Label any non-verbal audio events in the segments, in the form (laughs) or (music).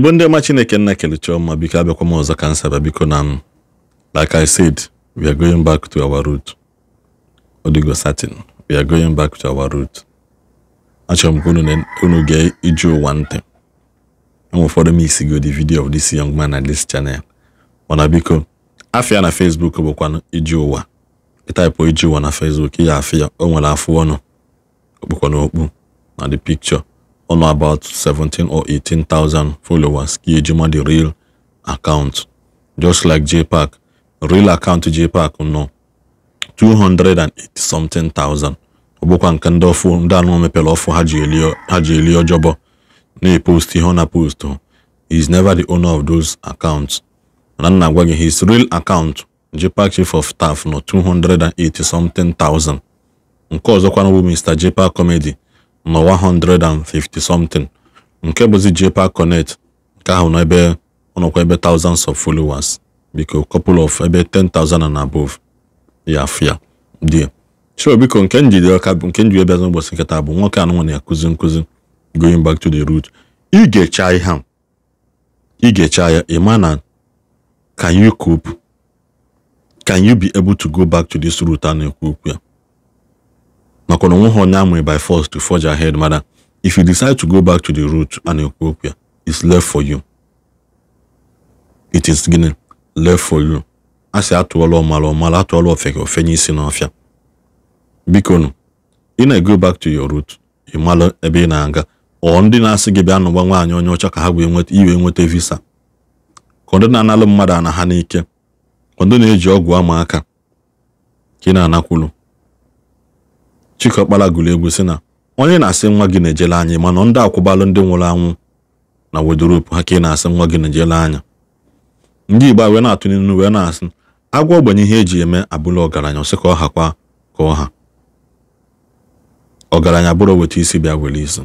igbo ndị ọma chineke nna kelechi ọma biko abịakwa m ọzọ kansa bịa biko na m like i said we are going back to our root odigo satin we are going back to our root achọrọ m ka unu gee iju ụwa ntị enwe ụfọdụ m isigo the video of this young man at this channel mana biko afịa na facebook bụkwa iju ụwa ịtaịpụ iju ụwa na facebook ya afịa o nwere afụ ọnụ okpukwa n'okpu na the picture on about 17 or 18,000 followers kí ejima the real account just like jpac real account jpac nọ 280 something thousand ọ bụkwa nke ndị ọfụ ndị anụ mepere ọfụ ha ji eli ọjọbọ na-epost e ihe ọ na post he is never the owner of those accounts na nna agwa gị his real account jpac chief of staff nọ 280 something thousand nke ọzọkwa bụ mr jpac comedy nọ 150 something nke bụzi jpa connect nke ahụ n'ebe ọnụkwa ebe thousands of followers biko couple of ebe 10,000 and above ya afia dị so biko nke njide ọka nke njide bịazi ụbọchị nkịta bụ nwoke anụmanụ na-akụzi nkụzi going back to the root ị ga-echa am you ị ga-echa ya ịma na can you cope can you be able to go back to this root a na-ekwu okwu ya na onwe ha onye amụrụ by force to forge ahead mana if you decide to go back to the root and na-ekwu okwu ya it's left for you it is gịnị left for you a sị atụọla ọmala ọmala atụọla ofeke ofenye isi n'ọfịa biko ị na-ego back to your root ị mala ebe ị na-aga ọ ndị na-asị gị bịa nụgba nwaanyị onye ọcha ka ha wee nweta iwe nweta visa ka ndị na-analụ mmadụ ana ha n'ike ka ndị na-eji ọgwụ ama aka ka ị na-anakwulu Chikọkpara gụrụ egwu sị na onye na-asị nwa gị na-ejele anya mana ndị akwụbalụ ndị nwụrụ anwụ na wedropu ha ka ị na-asị nwa gị na-ejele anya ndị Igbo wee na-atụ n'inu wee na-asị agwọ ogbenye ihe eji eme abụla ọgaranya ọsị ka ọ hakwa ka ọ ha ọgaranya bụrụ weta isi bịa were isi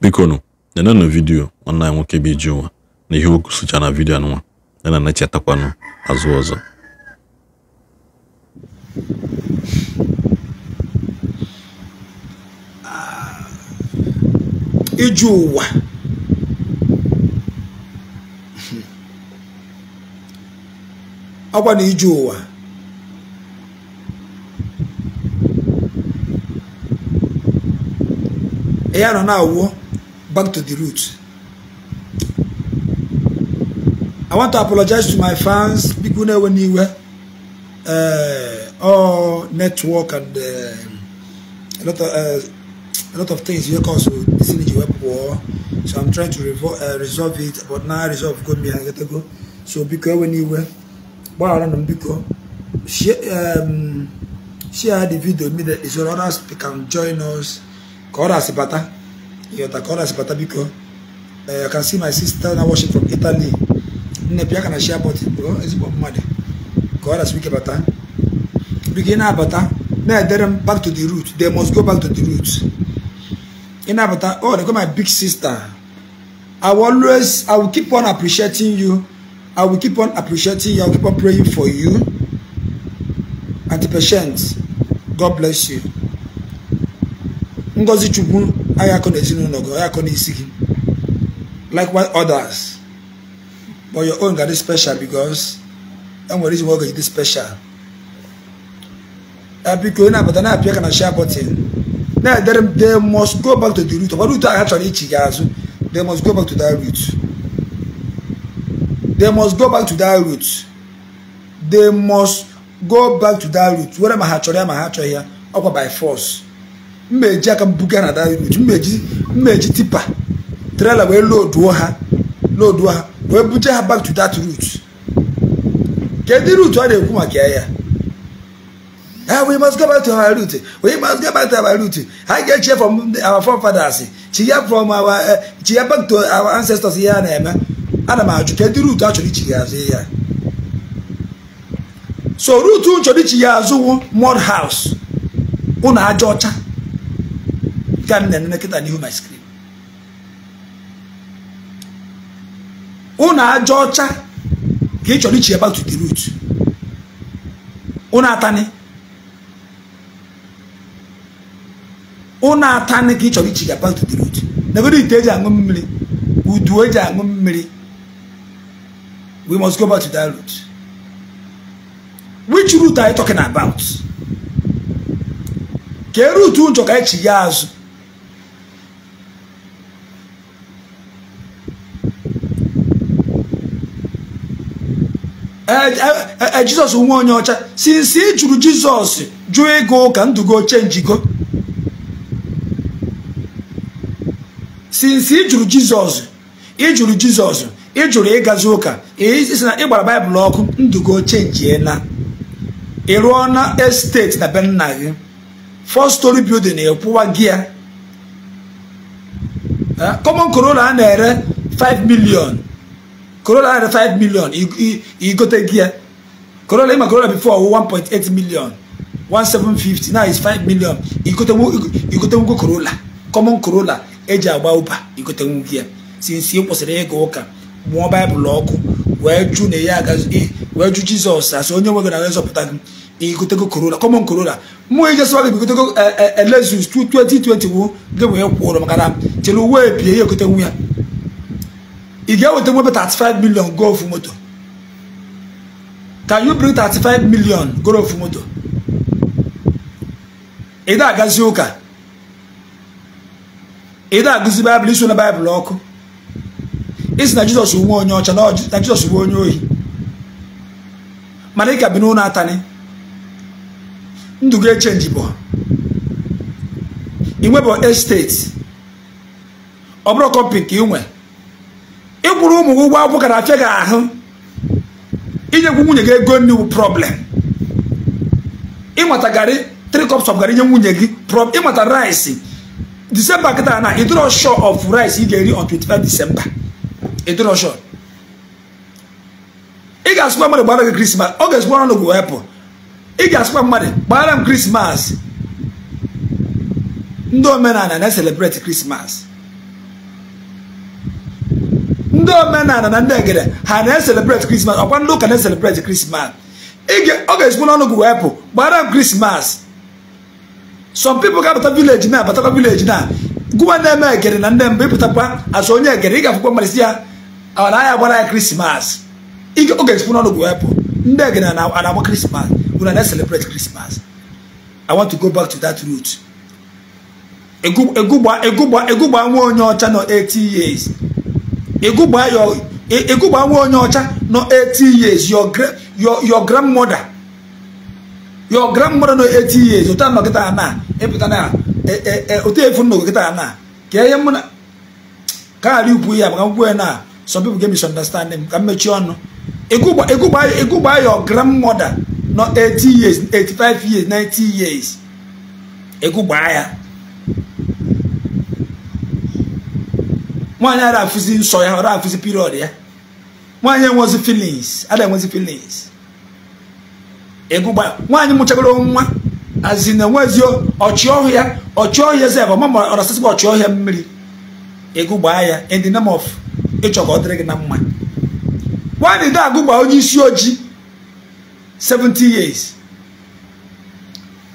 bikonu nenenụ vidiyo nwanne anyị nwoke bụ iji ụwa na ihe okwu sụcha na vidio nwa yana na echetakwanụ azụ ọzọ iju ụwa ọkwa na iju ụwa ya nọ na-awụ back to the root I want to apologize to my fans people na-ewe n'iwe all network and uh, a lot of uh, a lot of things here cause synergy web war. So I'm trying to revo- uh, resolve it, but now I resolve good me and get to go. So because when you were but I don't because share um share the video me that so others can join us. Call us, Sibata. You have know, Kora Sibata because uh, I can see my sister now watching from Italy. Nepia can share about it, bro. It's about money? Call us, about that. Begin now, that. Now, back to the root. They must go back to the roots ị oh they call my big sister I will always I will keep on appreciating you I will keep on appreciating you I will keep on praying for you And the Patience God bless you Ngozi Chukwu aya akọ n'ezinụlọ gị aya akọ likewise others but your own ga dị special because enwere reason why ọ ga-eji dị special biko ị na-abata na-apịa ka na share button they must go back to the root ọ root a chọrọ ichi gị azụ they must go back to that root they must go back to that root they must go back to that root were ma ha chọrọ ya ma ha chọghị ya ọkwa by force mma eji aka mbuga na that root mma eji tipa trailer wee loduo ha loduo ha wee buje ha back to that root kedụ root ọ na-ekwu maka ya Now eh, we must go back to our root. We must go back to our root. I get cheer from our forefathers. Cheer from our uh, eh, cheer back to our ancestors here and eme. Ana m ajụ di root a chọrọ ichi ga-azụ ya. So root m chọrọ ichi ya azụwo mud house. una aja ọcha. Ka m na-enene n'ihu my screen. Ụnụ ọcha ka ichi ya back to the root. Ụnụ atani. ụnụ ata ka ị chọrọ ichiga back to the root negodo ite eji aṅụ mmiri udu eji aṅụ mmiri we must go back to that root which root are you talking about kee rute ụjọ ka echi ya azụ ee e, e, e, jizọs nwe onye ọcha since ị jụrụ jizọs jụọ ego ka ndụgo chenjigo since ị jụrụ jizọs ị jụrụ jizọs ị jụrụ ịgazi ụka isi na ịgbara baịbụl ọkụ ndugo chenjie na ị rụọ na estet na be nna gị four story building ịkwụwa gị ya common corolla a na-ere 5 million corolla a na-ere 5 million igote gị ya corolla ịma corolla before 1.8 million 1750 now is 5 million igote nwoke corolla common corolla eji agba ụba igote nwoke ya si kwụsịrị ịga ụka mụọ baịbụl ọkụ wee jụ na ya wee jụ jizọs asị onye nwe gị na gị igotego korona kọmọn korona mụ ijesịwa gị bigotego elezus e, 2020 gị wee kwụrụ maka na chere uwe ebie ya egote nwu ya ị ga-eweta nwebe 35 million go ofu moto can you bring 35 million go ofu moto ị na-agazi ụka ịda agụzi baịbụl iso na baịbụl ọkụ isi na jizọs nwe onye ọcha na jizọs bụ onye ohi mana ị ka bi n'ụlọ atanị ndụ gị echenji bụ inwebụ esteti ọ bụrụ kọmpi nke inwe ịkwụrụ ụmụ gị ụgwọ akwụkwọ ka na-afịa gị ahụ inyekwu nwunye gị ego nri problem ịnweta garị three cups of garị nye nwunye gị ịnweta rice december kịta na ịdịrọ of rice ị ga-eri on 25 disemba december shọ ị ga-asụkwa mmadụ gbara gị christmas ọ ga-esukwa ọnụ gị wepụ ị mmadụ m krismas ndị omenaala na-eselebreti christmas ndị na ndị egede ha na ndị ụka na christmas ọ ga gị m christmas. some people ga-abata village na abatakwa village na gụwa na-eme egere na ndị mbụ ịpụtakwa azụ onye egere ị ga-afụkwa mmalisi ya ọ na ya gbara ya krismas oge esipu n'ọnụ gụ wepụ ndị egere na-agba krismas bụ na na-celebrate krismas i want to go back to that root egụgba nwa onye ọcha nọ 80 years egụgba nwa onye ọcha nọ 80 years your your grandmother your grandmother nọ 80 years ụta nọ kịta na ịpụta na ụta efu nọ kịta na ka ihe mụ na kaarị ukwu ya maka nkwụ na some people get misunderstanding ka mmechi ọnụ ịgụgba your grandmother nọ 80 years 85 years 90 years ịgụgba ya nwaanyị ara afụzi nsọ ya ara ra afụzi period ya nwaanyị enwezi feelings ada enwezi feelings ego nwaanyị mụchagoro nwa azi na enwezio ọchịọhịa ọchịọhịa zeb ọmama ọrasịsịba ọchịọhịa mmiri ego ya in the name of ịchọ ka ọ dịrị gị na mma nwaanyị dị agụgba onye isi ojii 70 years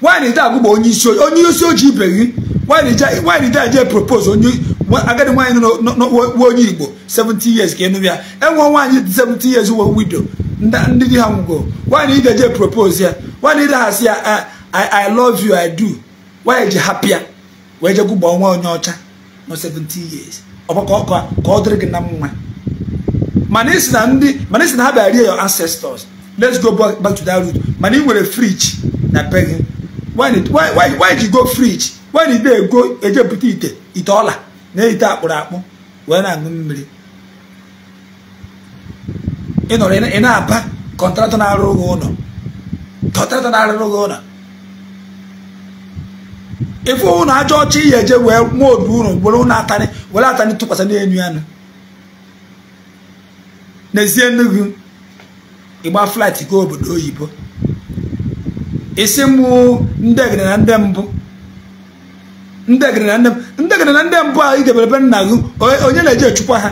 nwaanyị dị agụgba onye isi ojii onye isi ojii ibe gị nwaanyị dị aje propose onye agadi nwaanyị nwa onye igbo 70 years ka enụ ya enwe nwaanyị 70 years wee widow ndị di ha nwụgo nwaanyị ị ga propose ya nwaanyị ide ha ya ah, i love you i do nwaanyị e ji hapịa wee je gụgbaa nwa onye ọcha nọ 17 years ọgbakọ ka ọ dịrị gị na mma mana isi na ndị mana isi na ha bịa rie ancestors let's go back to that root mana ị nwere fridge na be gị nwaanyị ji go fridge nwaanyị ide ego ejepụta ite ite ọla na ite akpụrụ akpụ wee na-aṅụ mmiri ị nọrọ ị na-aba kọntratọ na arụ gị ụlọ kọntratọ na arụ gị ụlọ ife ụnụ ajọ ọcha ihe eje wee nwee obi unu were ụnụ atarị were atarị tụkwasị n'elu anụ n'ezie nnukwu ịgba flat ga obodo oyibo isi mụ ndị egere na ndị mbụ ndị egere na ndị mbụ a ị be nna gị onye na-eje echukwa ha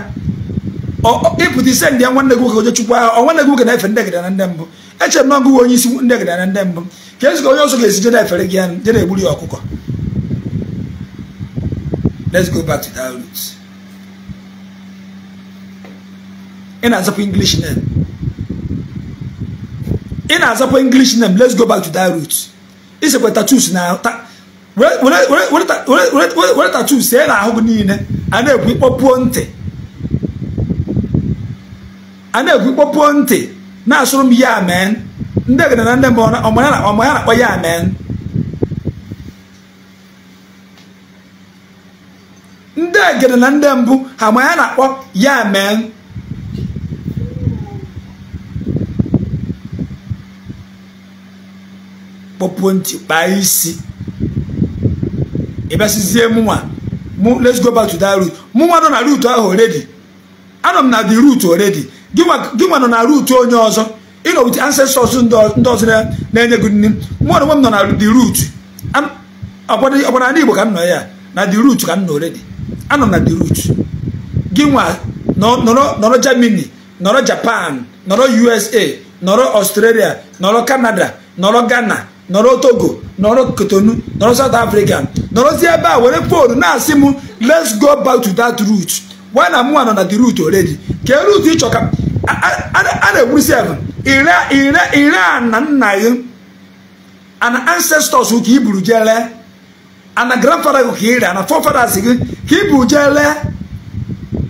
ịpụta ise ndị nwanne gị nwoke chukwu ahụ nwanne gị nwoke na-efe ndị egede na ndị mbụ echere m na ọgụ onye isi ndị egede na ndị mbụ ka ezi ka onye ọzọ ga-esi jede efere gị anụ na egburu ya ọkụkọ let's go back to that root ị na-azapụ english name let's go back to that root isekwa tatus na were tatus see na ahụ gị niile a na-ekwu ịkpọpuo ntị a na-egwu kpọpuo ntị na-asụrụ m ya amen ndị egede na ndị ọma ya na-akpọ ya amen ndị egede na ndị mbụ ha ma ya na-akpọ ya amen kpọpuo ntị kpaa isi ịbịasịzie mụnwa let's go back to that route mụnwa nọ na route ahụ oredi anọ m na the route oredi gịnwa nọ na ruutu onye ọzọ ịnọ nọ wit ancestors ndị ọzọ na-enye gị nri mụ na m nọ na the root ọkwara ndị Igbo ka m nọ ya na the root ka m nọ already anọ na the root gịnwa nọrọ Germany nọrọ Japan nọrọ USA nọrọ Australia nọrọ Canada nọrọ Ghana nọrọ Togo nọrọ Kotonu nọrọ South Africa nọrọzie ebe a were foonu na-asị m let's go back to that root why na mụ nọ na the root already kee root ịchọ ka a na-egburu si efe ire ire ire a na nna gị ana ancestors ka i buru jee lee ana grandfather gị ka ị rịa ana forefathers gị ka i buru jee lee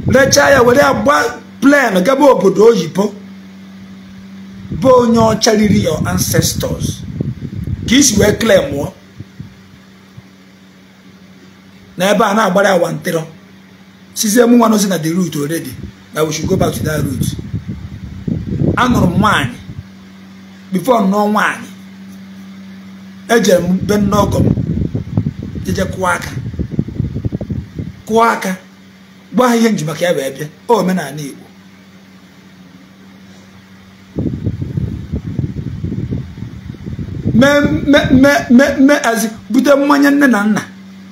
rechaa ya were ya gba plen gaba obodo oyibo bụ onye ọcha riri your ancestors ka isi wee claim mụọ n'ebe a na-agbara ya wantịrọ sizie m nwa nozi na the route already that we should go back to that route anụrụ m nwaanyị before nnọọ nwaanyị ejere m be nne ọgọ m kụọ aka kụọ aka gwa ha ihe nji maka ya wee bịa omenala Igbo mee bute mmanye nne na nna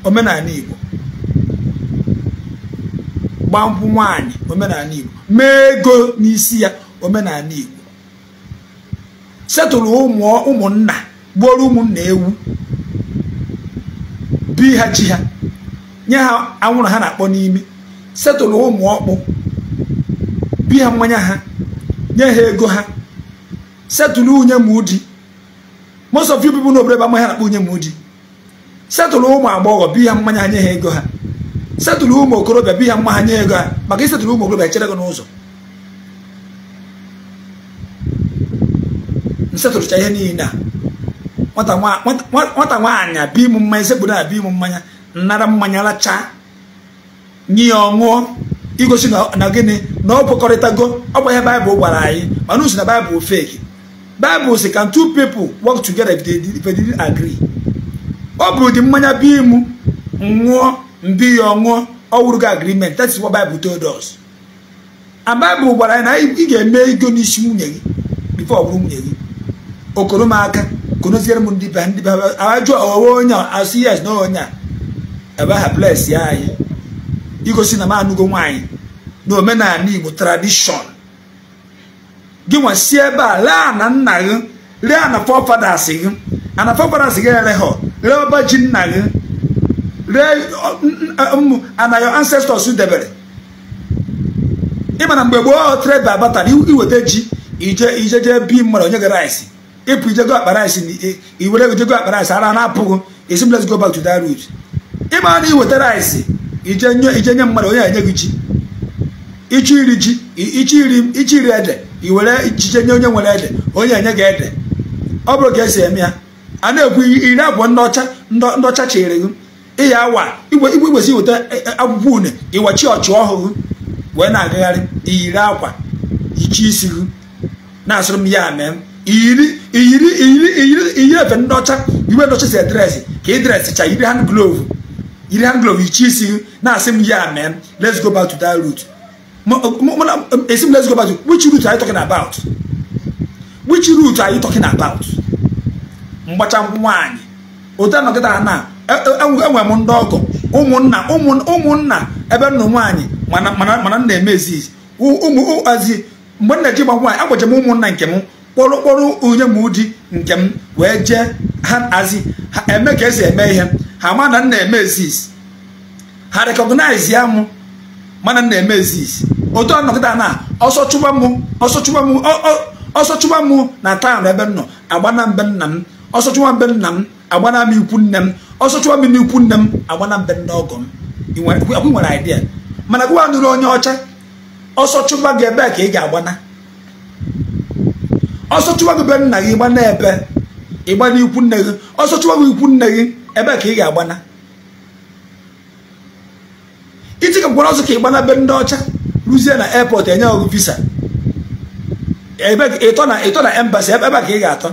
omenaala Igbo gbaa nkwụ nwaanyị omenala igbo mee ego n'isi ya omenala igbo setụrụ ụmụnna gbuoro ụmụnna ewu bi ha chi ha nye ha anwụrụ ha na-akpọ n'ime setụrụ ụmụ ọkpụ bi ha mmanya ha nye ha ego ha setụrụ unye mụdi most of you people n'obodo ebe amaghị ha na-akpọ unye mụdi setụrụ ụmụ agbọghọ bi ha mmanya ha nye ha ego ha setụrụ ụmụ okorobịa bi ya mma ha nye ego a maka isetụrụ ụmụ okorobịa echere gị n'ụzọ nsetụrụcha ihe niile a nwata nwaanyị abịa ịmụ mmanya sekpụrụ abịa m mmanya nnara mmanya lachaa nye ya ọṅụọ igosi na gịnị na ọ kwekọrịtago ọ bụ ihe baịbụl gwara anyị mana usi na baịbụl feki baịbụl si kan two people wọk together if agri ọ bụrụ dị mmanya bi m ṅụọ mbi ya ọṅụọ ọwụrụgo agreement that is what Bible told us and Bible gwara anyị na ị ga-eme ego n'isi nwunye gị before ọ bụrụ nwunye gị okoro m aka konoziere m ndị ba ndị ba ajụ owe onye asụ yes na onye a ebe ha bless ya anyị igosi na m anụgo nwaanyị na omenala Igbo tradishọn gị nwesi ebe a lee na nna gị lee na forefathers gị ana gị ere ha lee ọba ji nna gị ana your ancestors debere ịma na mgbe gboo trade by barter iweta ji ije ije jee bi mmadụ onye gị rice ịpụ ije go akpa rice iwere ije go akpa rice ara na-apụghị esi let's go back to that route ịma na iweta rice ije nye mmadụ onye enye gị ji ịchọ iri ji ịchọ iri ede iwere ijije nye onye nwere ede onye enye gị ede ọ bụrụ ka esi eme ya a na-ekwu iri abụọ ndị ọcha ndị ọcha chịrị gị ịya awa igwe igwesi weta e, e, akwụkwọ une ịwachi ọchị ọhụrụ wee na-agagharị iyiri akwa ichi isi gị na-asụrụ m ya mee iyiri iyiri iyiri iyiri iyiri efe ndị ọcha iwe ndị si edresị ka ị cha yiri hand glove yiri hand glove ichi isi gị na-asị m ya mee let's go back to that route esi m let's go back to which route are you talking about which route are you talking about mgbacha nwaanyị otu anọgịta na enwe m ndị ọgọ ụmụnna ụmụnna ebe nna nwaanyị mana nna eme ezizi ụmụazi mgbe nna ji gba nwaanyị agwaje m ụmụnna nke m kpọrọ kpọrọ onye m di nke m wee jee ha azi ha eme ka esi eme ihe ha ma na nna eme ezizi ha rekọgnaiz ya m mana nna eme ezizi otu anọgịda na ọsọ chụba m ọsọ chụba m ọsọ m na taa na ebe m nọ agbana mbe nna m ọsọ chụba mbe nna m agbana m ikwu nne m ọsọ m n'ikwu nne m agbana m be nne ọgọ m nwere idea mana gụwa nụrụ onye ọcha ọsọchụwa gị ebe ka ị ga-agbana ọsọchụwa gị be nna gị gbana ebe ịgba ikwu nne gị ọsọ gị ikwu nne gị ebe ka ị ga-agbana iti ka gwara ọsọ ka ịgbana be ndị ọcha ruzie na airport enye ọgụ visa ịtọ na embassy ebe ka ị ga-atọ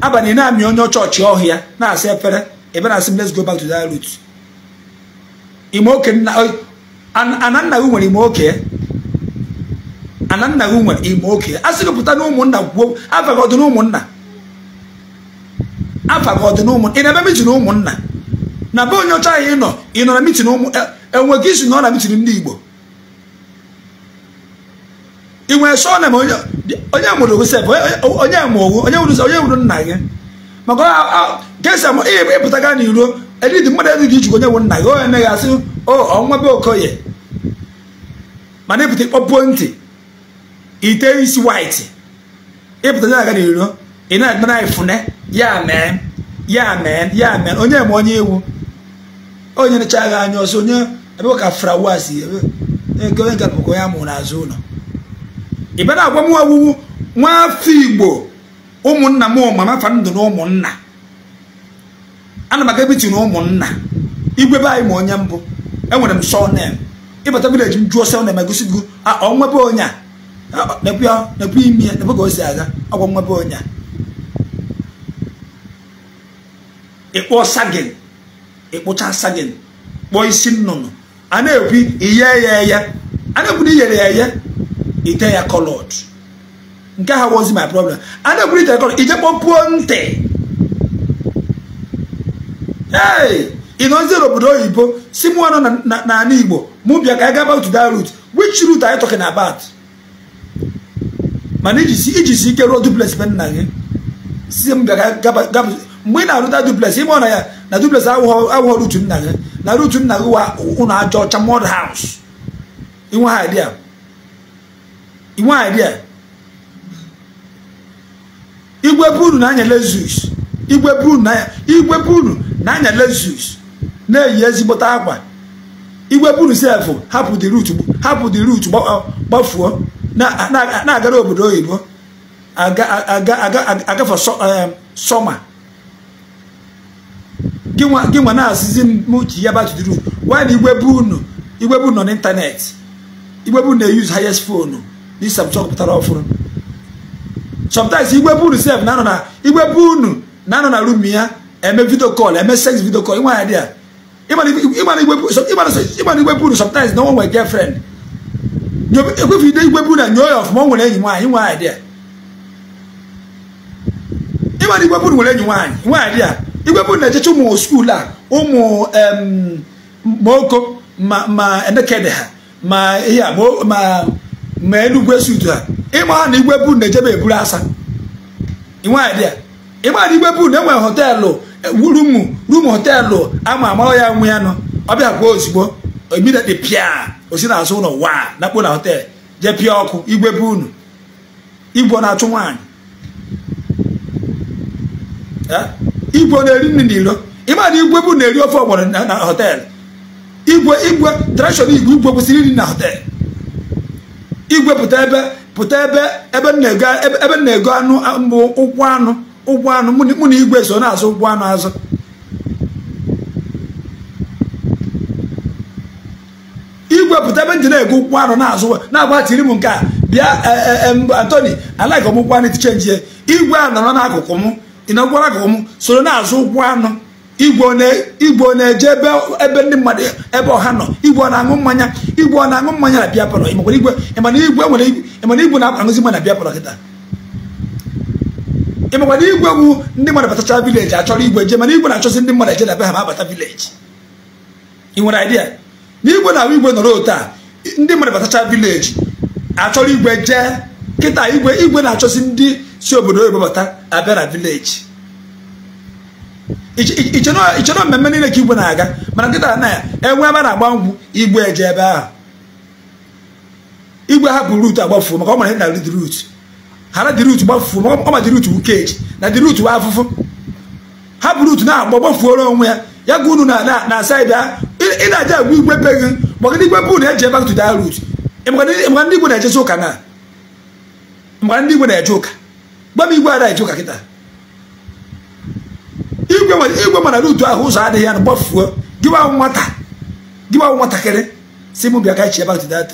abalị na-amị onye chọọchị ọhịa na asị efere ebe na asị let's go back to that route ananna gị nwere ime oke ananna gị nwere ime oke a sị gụpụta na ụmụnna gwuo afa gị ọdụ na ụmụnna afa gị ọdụ na ụmụnna ị na ebe mitin ụmụnna na be onye ọcha ahụ ị nọ ị nọ na mitin ụmụ e, enwe gị isi nọ na mitin ndị Igbo ị nwere shọna ma onye mụrụ Josef onye mụrụ onye mụrụ onye mụrụ nna gị maka ka esi ama ihe ịpụta gaa n'iro edidi mmadụ ezighị ichukwu onye nwụrụ nna gị onye emeghị asị o ọnwa be okoye mana ịpụta ịkpọpuo ntị ite isi waiti ịpụta nye aga n'iro ị na-adịnara ifune ya mee ya mee ya mee onye ma onye iwu onye necha agha anya ọsọ onye ebe ka frawas ebe onye nke bụkwa onye amụrụ n'azụ ụlọ Ibada agwa awu, ọwụwụ nwaafọ igbo ụmụnna m mama fa ndụ na ụmụnna ana m aga ebiti na ụmụnna igwe be anyị ma onye mbụ enwere m sọnem ịbata vileji m jụọ sọnem egosi gị ọnwebe onye a nekwe imi ya nekwe ka o si aga ọgwa nwebe onye a ịkpọ sagin ịkpụcha sagin kpọọ isi nnụnụ a na-ekwu iye ya eye a na-ekwu na iyere ya eye ite ya kọlọd nke ha wozi my problem a na-ekwuru ite kọlọd ije kpọpuo ntị ee ịnọziere obodo oyibo si mụ na n'ala igbo mụ bịa ka anyị gaba to that route which route are you about mana iji si ike ruo duplex be nna gị si m bịa mgbe ị na-arụta duplex ime na ya na duples awụghọ rutu nna gị na rutu nna gị wa ụlọ aja ọcha mod haus inwe ha idea a dị igwe buru na-anya lezus igwe buru na-anya lezus na-eyi ezigbote akwa igwe buru sefụ hapụ dị rut hapụ dị rut gbafuo na-agara obodo oyibo agafe sọma gị nwa na-asịzi m ji ya batụdị wa gwa na igwe buru nọ n'ịntanetị igwe na-eyuz highest fonu na isepụta pụtara ọfụrụ sometimes igwe bunu sef na-anọ na igwe bunu na-anọ na rum ya eme video call eme sex video call nwa ya dị ya ịgbana igwe bunu sometimes na onwe girlfriend ekwefu ide igwe bunu na nyoo ya ọfụma o nwere enyi nwaanyị nwa ya dị ya ịgbana igwe bunu nwere enyi nwaanyị nwa ya dị ya igwe bunu na-echecha ụmụ skuul a ụmụ maoko ma endekede ha ma ihe a ma ma enugwe sutu ha ịma na igwe bu na-ejebe eburu asa ịma na igwe bu na enwere họteelụ e, rumu rumu họteelụ ama amara ya nwe ya nọ ọbịa gwa ozugbo immediately pịa osi n'azụ ụlọ waa nakpo na họteelụ jee pịa ọkụ igwe bu unu igwe na-achụ nwaanyị igwe na-eri nri n'iro ịma na igwe bụ na-eri ofe ọgbọrọ na họteelụ igwe igwe tradishọn igwe igwe kwụsịrị iri na họteelụ igwe pụta ebe pụta ebe ebe na-ego ebe na-ego anụ ụkwụ anụ ụkwụ anụ mụ na igwe so na-azụ anụ azụ igwe pụta ebe ndị na-ego ụkwụ anụ na-azụ na m nke a bịa e, e, e, Anthony alaghị m ụkwụ anụ tichenji igwe a nọrọ n'akụkụ m ị nọkwara n'akụkụ m soro na-azụ ụkwụ anụ igwe na-eje ebe ndị mmadụ ebe ọha nọ igwe na-aṅụ mmanya igwe ọ na-aṅụ mmanya na bịa palọ ịmakwana igwe na-aṅụzi mmanya na bịa kịta ịmakwana igwe bụ ndị mmadụ batacha vileji achọrọ igwe je mana igwe na-achọzi ndị mmadụ ejedaba ha ma abata vileji ị nwere idea na igwe na-ahụ igwe nọrọ otu ndị mmadụ batacha vileji achọrọ igwe jee kịta igwe igwe na-achọzi ndị si obodo oyibo bata abịa na vileji ichọrọ mmemme niile ka igwe na-aga mana nkịta na enwe ebe a na-agba ngwụ igwe eje ebe ahụ igwe hapụ rut agbafuo maka ọ mara na dị rut hara dị rut gbafuo maka ọ ma dị rut wukeji na dị rut wa afụfụ hapụ rut na-agba gbafuoro onwe ya ya ga unu na saịdị a ị na-aja agwa igwe be peghị maka ndị igwe bụ na eji ebe akụtụ daa rut maka ndị igwe na-ejezi ụka na maka ndị igwe na-eje ụka gba m igwe ada eje ụka kịta igwe mana n'utu ahụ ụzọ adịghị ya na gbafuo nwata gịwa nwatakịrị si m bịa ka echi back to that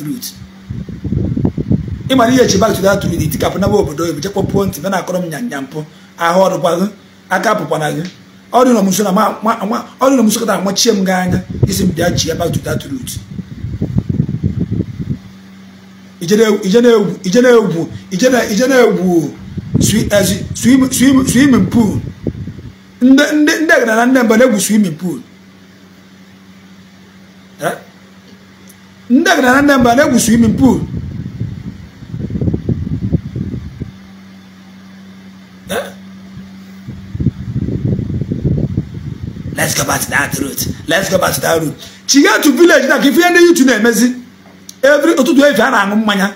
ị mara ihe chi back to that itikapụ naba obodo oyibo pụọ ntị na akọrọ m nyanya mpụ ahụ ọrụkwa aka gị ọrụ na mso kọta amachie m anya isi m bịa egwu swimming ndị ndị na ndị mba na-egwu swimming pool eh? ndị agana na ndị mba na-egwu swimming pool eh? let's go back to that route let's go back to that route chiga village na ka ndị yutu na-emezi every ụtụtụ efi a na-aṅụ mmanya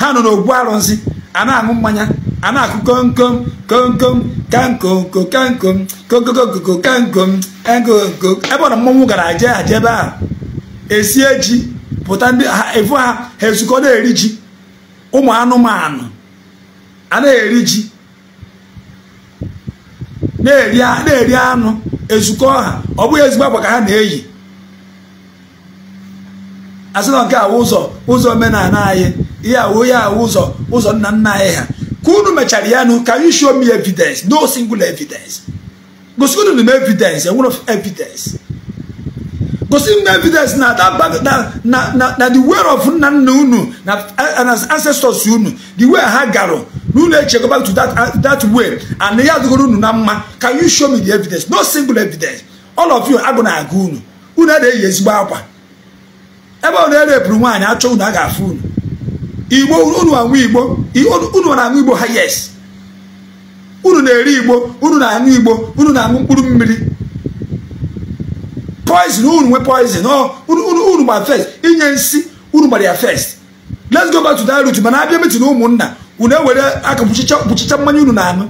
ha nọ n'ogbu arụsị a na-aṅụ mmanya a na-akụ komkom komkom kankom kokankom kokokokokokankom ekokoko ebe ọ na mmọnwụ gara je ha jebe a. esie ji pụta ndị evu ha ha ezukọ na-eri ji ụmụ anụmanụ a na eri ji na-eri anụ ezukọ ha ọ bụghị ezigbo akwa ka ha na-eyi asị na nke a ụzọ ụzọ omenala anyị ihe awụ ihe awụ ụzọ ụzọ nna nna anyị ha Gunu Machariano, can you show me evidence? No single evidence. Gosigunu no evidence, a one of evidence. no evidence na that bag na na na the way of nanu nu na and as ancestors unu the way Hagaro nu na go back to that uh, that way and na yadu nu na mma can you show me the evidence no single evidence all of you agona agunu unu dey yes gba akwa ebe unu erepuru nwaanyị achọ unu a ga-afụ unu igbo unu anwụ igbo unu na igbo ha yes unu na-eri igbo unu na igbo unu na mkpụrụ mmiri poison unu nwe poison unu gbara first inye nsi unu gbara ya first let's go back to that route mana abịa metin ụmụnna unu ewere aka kpuchicha mmanya unu na anụ.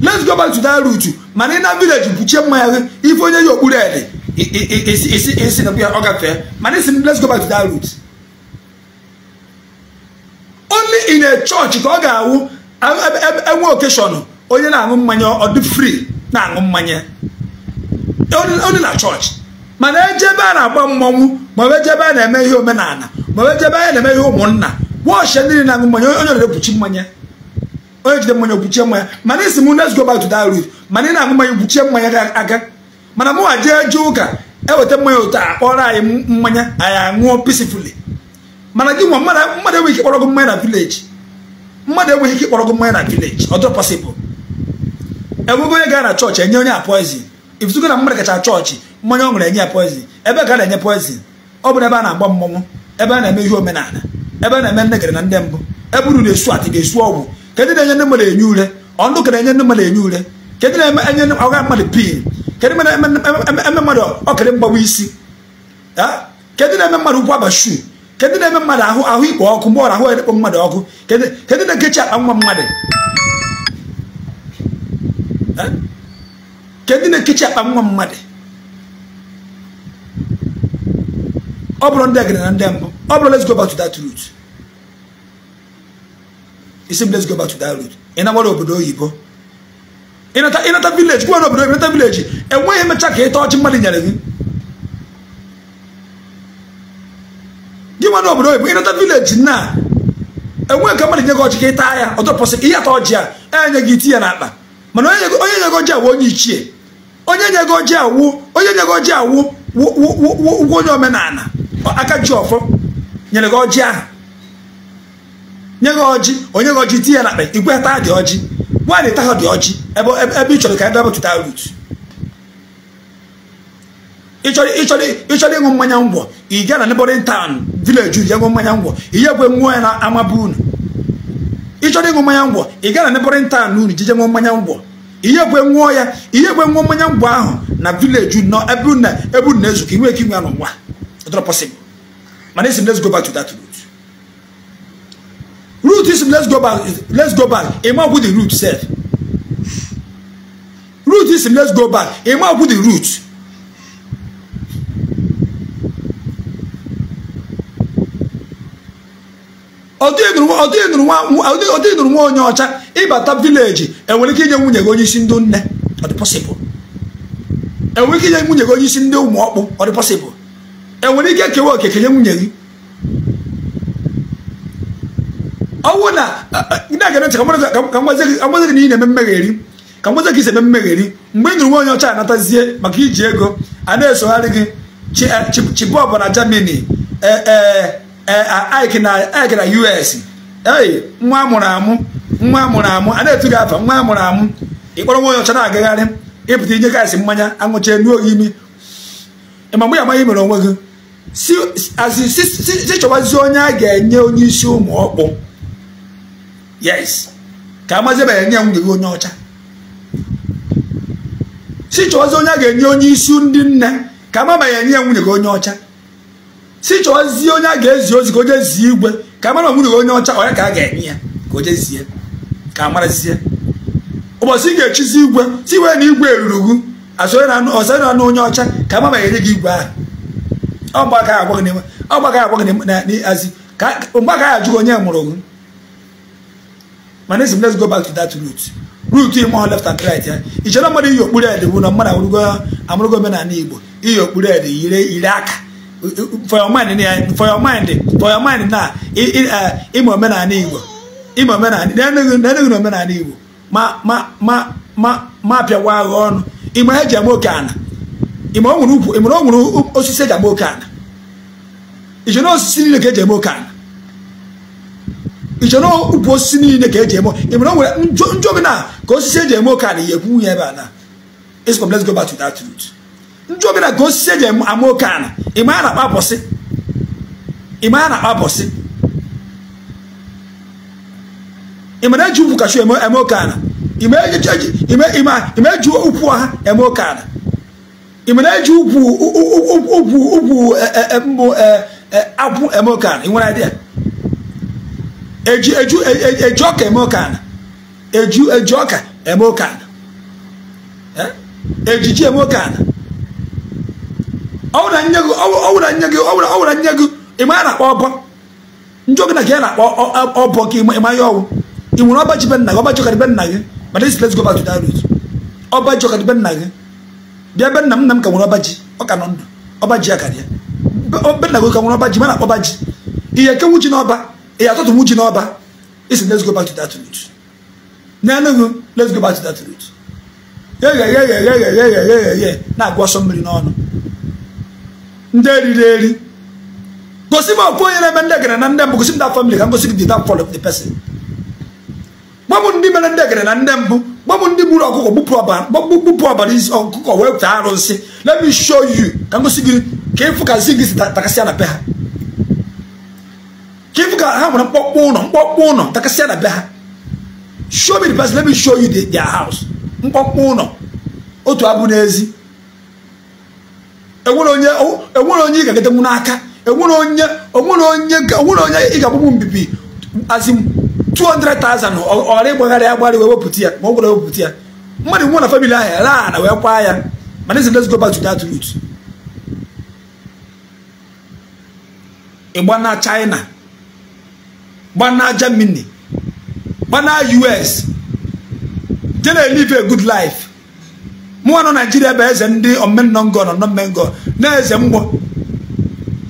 let's go back to that route mana ị na village kpuchie mmanya ife onye ya okpuru ede isi na ọ gafee mana isi let's go back to that route. only in a church ka ọ ga-awụ enwe okeshọn onye na-aṅụ mmanya ọdị free na-aṅụ mmanya only na chọọchị mana ejebe a na-agba mmọnwụ maọbụ ejebe a na-eme ihe omenala maọbụ ejebe a na-eme ihe ụmụnna wọọchị ndị na-aṅụ mmanya onye na-ekpuchi mmanya onye jide mmanya okpuchie mmanya mana isi m let's go back mana ị na-aṅụ mmanya okpuchie mmanya aka mana mụwa jee jee ụka eweta mmanya otu akpọrọ anyị mmanya anyị aṅụọ peacefully mana gị nwa mmadụ enweghị ike kpọrọ gị mmanya na vileji mmadụ enweghị ike kpọrọ gị mmanya na vileji ọ dịrọ pọsịbụl enwego onye gara na chọọchị enye onye a poizin ifụtụgo na mmadụ kacha chọọchị mmanya ọ ṅụrụ enye ya poizin ebe ga na-enye poizin ọ bụrụ ebe a na-agba mmọnwụ ebe a na-eme ihe omenala ebe a na-eme nnegere na ndị mbụ ebe uru na-esu atị ga-esu ọgwụ kedụ na-enye ndị mmadụ enye ure ọndụ ka na-enye ndị mmadụ enye ure kedụ na-enye ọga mmadụ pin kedụ na-eme mmadụ ọkịrị mgbawa isi kedụ na-eme mmadụ ụkwụ abashu kedu na-eme mmadụ ahụ ahụ ikpo ọkụ mgbe ọrụ ahụ ekpo mmadụ ọkụ kedu na akpa nwa mmadụ eh? kedu na-ekechi akpa nwa mmadụ ọ bụrụ ndị agịrị na ndị mbụ ọ bụrụ let's go back to that route isi let's go back to that route ị na obodo oyibo ịnata vileji gwa n'obodo oyibo ịnata vileji enweghị emecha ka ịta ọchị mmadụ nyere gị na obodo oyibo ịnọta vileji na enwe nke mmadụ nye gị ọjị ka ịta ya ọ ka ihe ata ọjị a enye gị iti ya akpa mana onye nye gị ọjị awụ onye ichie onye nye gị ọjị awụ onye nye gị ọjị awụ ụgwọ onye omenala aka ji ọfọ nyere gị ọjị ahụ nye gị ọjị onye gị ọjị iti ya akpa igwe taa dị ọjị nwaanyị taa dị ọjị ebe ị chọrọ ka ebe apụtụta rutu ịchọrọ ịṅụ mmanya ngwọ ị gaa na neighboring town village ya ṅụọ mmanya ngwọ ihe nwụọ ya na ama unu ịchọrọ ịṅụ mmanya ngwọ ị mmanya ngwọ nwụọ ya nwụọ mmanya ahụ na village nọ ebe unu ebe unu na anọ inwe ike inwe mana isi m let's go back to that route isi m let's go back sef route isi m let's go back route ọdị nụrụ nwa onye ọcha ịbata vileji enwere ike inye nwunye gị onye isi ndị nne ọ dị pọsịbụl enwere ike inye nwunye gị onye isi ndị ụmụ ọkpụ ọ dị pọsịbụl enwere ike kewa oke kenye nwunye gị ọnwụ na na-aga ntị ka mgbazi gị na ị na-eme mmegheri ka mgbazi gị eme mmegheri mgbe ị nụrụ nwa onye ọcha anatazie maka iji ego a na-esogharị gị chibọbụ eh, na Germany ee eh, eh, Ike na ike na US nwa amụrụ amụ nwa amụrụ amụ a na-etu gị afa nwa amụrụ amụ ịkpọrọ nwa onye ọcha na-agagharị ịpụta inye gaasị mmanya anwụchie nuo gị imi ịma mgbe ya amaghị mere onwe gị si chọbazie onye a ga-enye onye isi ụmụ ọkpụ yes ka amazibeghị nye nwunye gị onye ọcha si chọbazie onye a ga-enye onye isi ndị nne ka amabeghị enye ya nwunye gị onye ọcha si zie onye a ga-ezi ozi ka o jezie igwe ka amara onwere onye ọcha onye ka a ga-enye ya ka o zie ka zie ụbọchị ị ga-echizi igwe si wee na igwe eruru ọsọ na anụ onye ọcha ka amama enye gị igwe ahụ mgbe aka agwa gị n'azi mgbe aka ya ajụghị onye mụrụ gị mana esi m let's go back to that root root ime ọ left and right ya ichere mmadụ iyi okpuru ede bụ na mmadụ amụrụgo omenala igbo iyi okpuru ede yire aka for your mind for your mind for your mind na ịma uh, omenala igbo ịma omenala na-enweghị na omenala igbo ma ma ma ma ma pịawa agha ọnụ ịma eji ama oke ana ịma o nwere ukwu ịma o nwere osisi eji ama oke ana iche na osisi niile ka eji eme oke ana iche na ukwu osisi niile ka eji eme ịma o nwere njọ bi na ka osisi eji eme oke ana ihe ekwu nwunye ebe a na it's complex go back to that root ndị obere ka osisi eji ama oke ana ịma a na-akpa bọsị a na-akpa bọsị ịmara eji ukwu kashu eme oke ana ịma eji ukwu ọha eme oke ana ịmara eji ukwu ukwu ukwu e, e, e, mbụ akwụ eme oke ana ị nwere idea eji eji ọka eme oke ana eji eji ọka eme oke ana ejiji eme oke ana ọwụra nye gị ọwụra nye gị ọwụra ọwụra nye gị ịma ya na-akpọ ọbọ njọ gị na ka ya na-akpọ ọbọ ka ịma ya ọwụ ị nwere ọba ji be nna gị ọba jọkara be nna gị ma this let's go back to that route ọba jọkara be nna gị bịa be nna m nna m ka nwere ọba ji ọ ka nọ ndụ ọba ji ya karịa be nna gị ka nwere ọba ji ma na-akpọ ọba ji ihe ekewu ji n'ọba ihe atụtụnwu ji n'ọba isi let's go back to that route n'enugu let's go back to that route na-agwa ọsọ mmiri n'ọnụ ndị eriri eri gosi m okwu na-eme ndị egere na ndị mbụ gosi m ka m gosi gị ndị mere ndị egere na ndị mbụ gwa m ndị gburu ọkụkọ gbupụ ọbara isi ọkụkọ wee pụta arụ nsị let me show you ka m gosi gị ka ịfụ ka zi gị si ha ka ịfụ ha nwere mkpọkpọ ụlọ mkpọkpọ ụlọ takasịa na be ha show me the person let me show you their house mkpọkpọ ụlọ otu abụ n'ezi enwere onye ị ga-agatenwu n'aka enwere onye onwere onye ị ga-agbagbu mbibi azim 200,000 ọra ịgbagharị agbarị wee wepụta ya ma ọ gwara wepụta ya mmadụ nwụ na famili ahụ raa na wee kwa ya mana ezi let's go back to that route ịgbana China gbana Germany gba gbana US je na-elive a good life mụnwa nọ naijiria bụ eze ndị omenọngọ na omenọngọ na eze mgbọ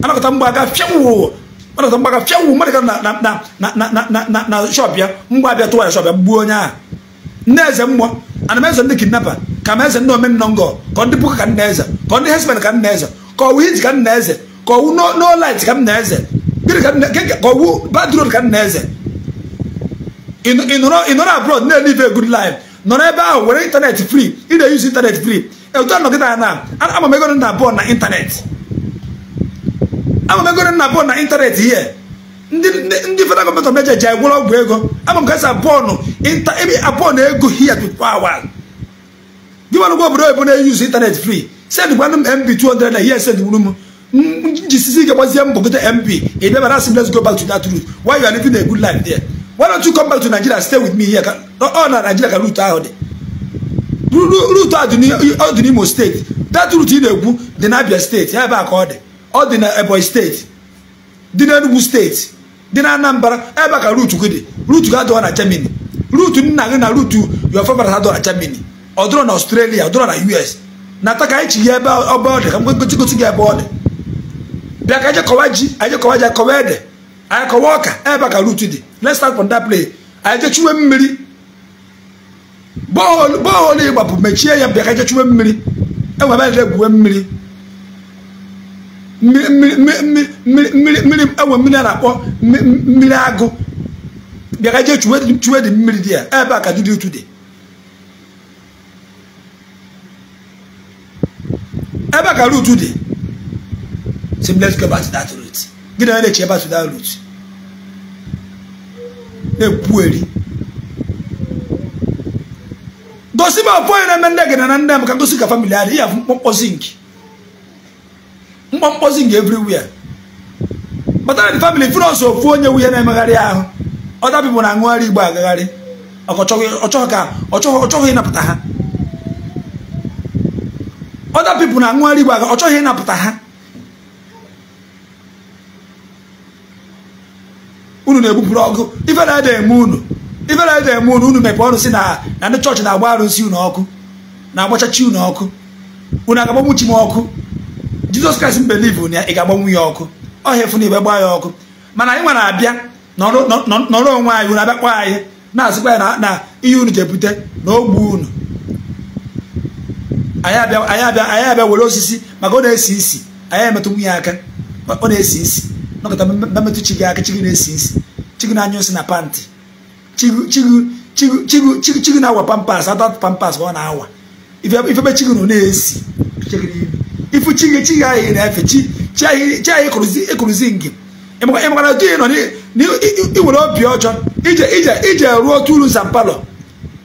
anakọta mgbọ aga fịanwụ anakọta mgbọ aga fịanwụ mmadụ ga na shọp ya mgbọ abịa tụwa ya shọp ya gbuo onye ahụ ndị eze mgbọ ana m eze ndị kidnapa ka m eze ndị omenọngọ ka ọ ndị puka ka nna eze ka ọ ndị hesmen ka nna eze ka ọwụ iji ka nna eze ka ọwụ n'olit ka nna eze ka ọwụ badrod ka nna eze ị nọrọ abroad na-elive good life nọ n'ebe ahụ were internet free ị na-eyuzi internet free etu anọgide anya na ama m ego nna abụọ na ịntanetị ama m ego nna abụọ na internet ihe ndị federal gọọmenti of ji anyị gwụrụ ọgwụ ego ama m ka esi abụọ abụọ na ego hia tupu awa gị nwa obodo oyibo na-eyuzi ịntanetị free sendịkwanụ m mb 200 na ihe gwuru m njisizi ike gbazie mbọgide mb ị bịabara asị let's go back to that route why there why don't you come back to nigeria stay with me here all oh, oh, na nigeria ka route ahụ dị route ọ dị n'imo steeti that route ị na egwu dị n'abia steeti ebe a ka ọ dị ọ dị na steeti dị steeti dị na anambra ebe a ka route gị dị route gị adịghị na germany route nna gị na route your favorite adịghị na ọ ọ na us Nataka ebe ọ dị anyị kọwa ọka ebe ka rut dị let's start from that place anyị jechiwe mmiri bọọlụ ịgbapụ mechie ya bịa ka jechiwe mmiri enwe ebe egwuwe mmiri mmiri enwe mmiri a na-akpọ mmiri agụ bịa ka jee chuwe dị mmiri dị ya ebe a ka dị otu dị ebe ka rut dị let's go back to that root gịnị onye na-eche back to that root ekwueri gosi m afọ onye na nne gị na nne m ka gosi ka famili adị ya mkpọmkpọ zinc mkpọmkpọ zinc everywhere batara dị famili fere ọsọ ofu onye nwunye na-emegharị ahụ ọdabibụ na aṅụgharị igbo agagharị ọchọghị ịnapụta ha ọda pipụ na aṅụgharị igbo aga ọchọghị ịnapụta ha unu na-egbupụrụ ọkụ ife na-ede eme unu ife na-ede eme unu unu mepe ọrụ si na na ndị chọọchị na-agba arụsị unu ọkụ na-agbachachi unu ọkụ unu agagbanwu chi m ọkụ jizọs kraịst mbelivu na ị ga-agbanwu ya ọkụ ọhịa efu na igbe gbaa ya ọkụ mana anyị nwere abịa nọrọ onwe anyị unu abịakpọ anyị na-asịkwa ya na ihe unu jebute na ogbu unu anyị abịa were osisi maka ọ na-esi isi anyị emetụ nwunye aka ọ na-esi isi nọkọta mmetụ chi gị aka chi gị na-esi chi gị na-anya osi na pantị chi gị na-awa pampas ada pampas ọ na-awa ifebe chi gị nọ na-esi ifu chi gị chi gị ahịa na-efe chi ahịa ịkụrụzi ngị ịmakwana otu ị nọ iwere obi ọjọọ ije ije ije ruo otu uru zampalọ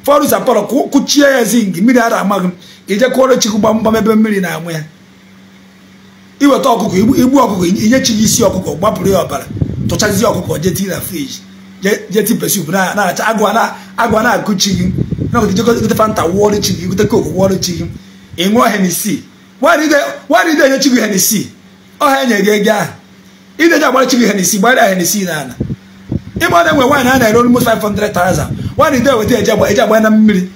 fọrụ zampalọ kụchie ya zi ngị mmiri ara amaghị m ije kụọrọ chi gị gbamgbam ebe mmiri na-amụ ya iweta ọkụkọ igbu ọkụkọ inye gị isi ọkụkọ gbapụrụ ya ọbara tụchazie ọkụkọ jeti na friji jeti pesup na acha agwa na-akụchi gị gote fanta wụọrọ chi gị gote koku wụọrọ chi gị ịṅụọ henisi nwaanyị ide gị ọha enye gị ego ahụ ide ji gị gbara enwe nwaanyị a na-ere nwaanyị ide weta eji agba na mmiri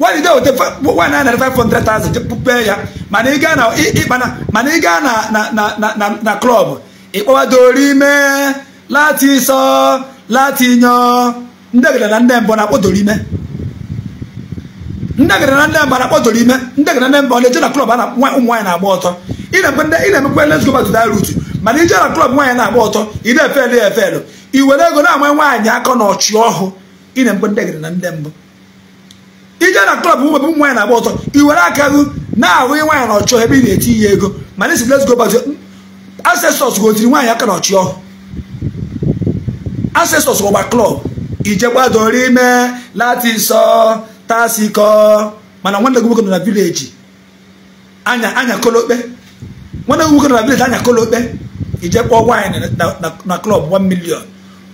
why you dey wete one nine five hundred thousand pee ya mana ịga na ịkpana mana ịga na na na na klọb ịkpọwadori ime lati sọ lati nyọ ndegede na ndị mbọ na-akpọdoro ime ndegede na ndị mbọ na-akpọdoro ime ndegede na ndị mbọ na-eje na klọb na ụmụ nwaanyị na-agba ọtọ ị na-emekwa let's go back to that route mana ije na klọb nwaanyị na-agba ọtọ ị na-efelu efelu i were ego na-ama nwaanyị aka na ọchị ọhụụ ị na-emekwa ndegede na ndị mbọ ije na klọb ụmụ ụmụ nwaanyị na-agba ọtọ i were aka hụ na-ahụ nwaanyị na ọchọ ebe ị na-eti ya ego mana esi let's go back ancestors gotiri nwaanyị aka na ọchị ọhụ asesọs gbagba klọb ije gbadoro ime latisọ tasikọ mana nwanne gị nọ na vileji anya anya kolokpe nwanne gị nọ na vileji anya kolokpe ije nwaanyị na klọb 1 million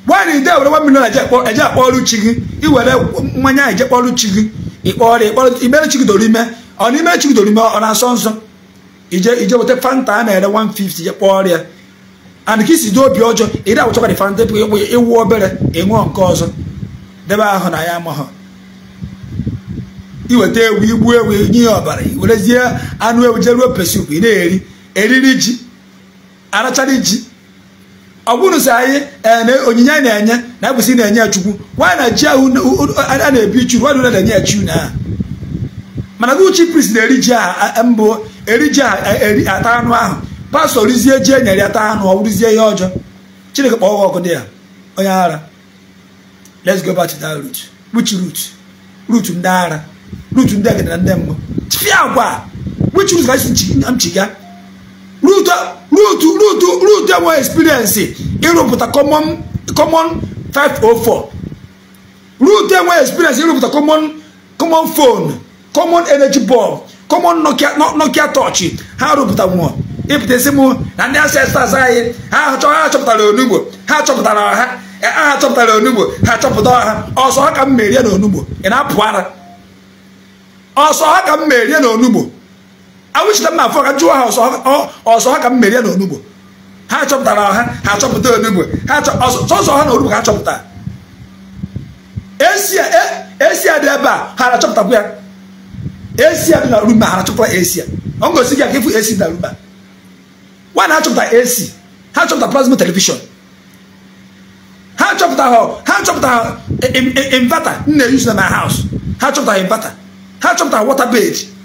nwaanyị ide were 1 million eje akpọ ọrụ chi gị iwere mmanya eje kpọọ ọrụ chi gị ọrịa ịkpọrọ imere chigidoro ime ọ na imere chigidoro ime ọ na-asọ nsọ ije ije weta fanta a na-ere 150 je kpọọ ọrịa and ka isi dị obi ọjọọ ịdị dị awụchakwa dị fanta ịwụ obere ịṅụọ nke ọzọ debe ahụ na ya amahụ iweta ewu igbu ewu nye ọbara ọbara werezie anụ ewu jeruo pesup ị na-eri eriri ji arachara ji ọ bụrụ sị anyị onyinye anyị na-enye na agbụsị na-enye ya chukwu nwa na ji ahụ a na-ebi chu nwa na na-enye ya chi na mana uchi prist na-eri ji aha mbụ eri ji aha eri ata anụ ahụ pastọ rizie ji enyere ata anụ ọ bụrụzie ihe ọjọọ chineke kpọọ ọkụ dị ya onye ara let's go back to that root which root root ndị ara root ndị agada na ndị mbụ tifia agwa which root ka m chi ga rutu ruutu ruutu ruutu enwe experience ịrụpụta common common five 504 ruutu enwe experience ịrụpụta common common phone common energy bulb common nokia nokia touch ha rụpụta nwụọ ịpụtasị m na ndị ancestors anyị ha chọpụtara onugbo ha chọpụtara ọha ha chọpụtara onugbo ha chọpụta ọha ọsọ ha ka m merie na onugbo ị na-apụ ara ọsọ ha ka m merie na onugbo awụchita mma afọ ka jụọ ha ọsọ ha ka m merie na onugbo ha chọpụtara ọha ha achọpụta onugbo ha sọsọ ha na onugbo ka ha chọpụtara esi dị ebe a ha achọpụtakwu ya esi dị na rumba ha achọpụta esi ọ ngosi gị aka ifu esi dị na rumba nwaanyị ha chọpụta esi ha chọpụta plasma telivishọn ha chọpụtara ha chọpụtara invata nna eyuzu na my house ha chọpụtara invata ha chọpụtara water bed